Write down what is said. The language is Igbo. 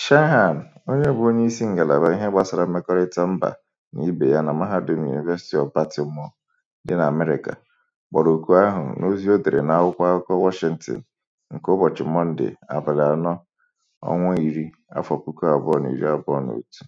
Shehan, onye bụ isi ngalaba ihe gbasara mmekọrịta mba na ibe ya na Mahadum University of Baltimore dị n'Amerịka, kpọrọ oku ahụ n'ozi o dere n'akwụkwọ akụkọ Washington nke ụbọchị Mọnde, abalị anọ, ọnwa iri, afọ puku abụọ na iri abụọ na otu.